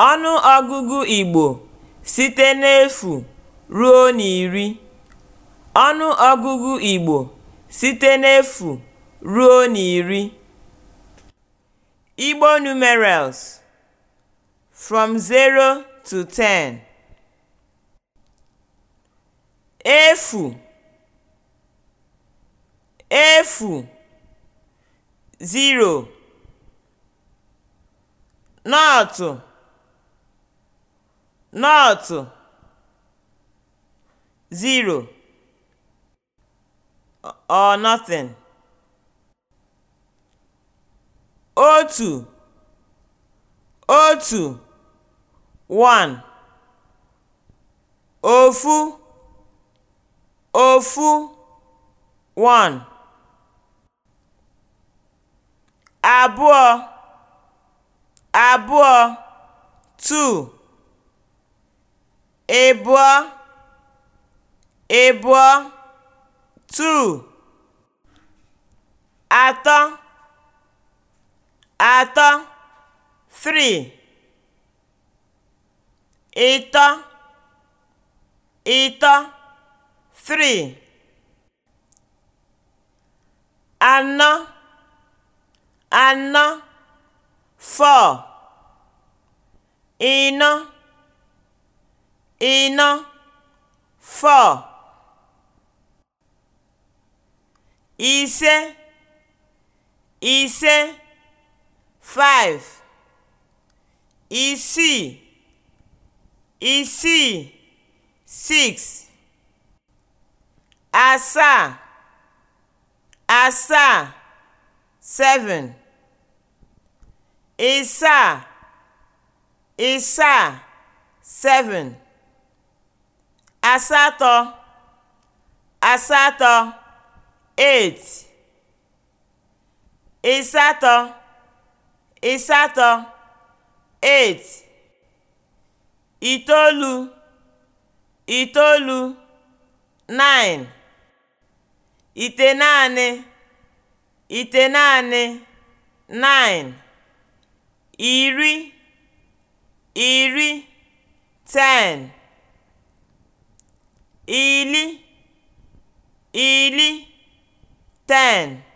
g igbo ọnụogụgụ igbo site n'efu ruo niri igbo numeras fm023 e e efu 0ro t nọtụ, (0 or nothing), otu (otu (1) ofu (ofu (1) abụọ (abụọ (2) ịbụ ịbụọ (two) atọ atọ (three) ịtọ ịtọ (three) anọ anọ (four) ịnọ ịnọ four ise ise five isii isii six asaa asaa seven ịsaa ịsaa seven asatọ asatọ eight ịsatọ ịsatọ eight itoolu itoolu nine itenaanị itenaanị nine iri iri ten ii 10.